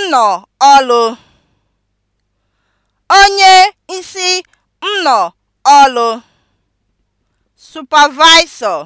nnọ ọlụ (onye isi nnọ ọlụ) supervisor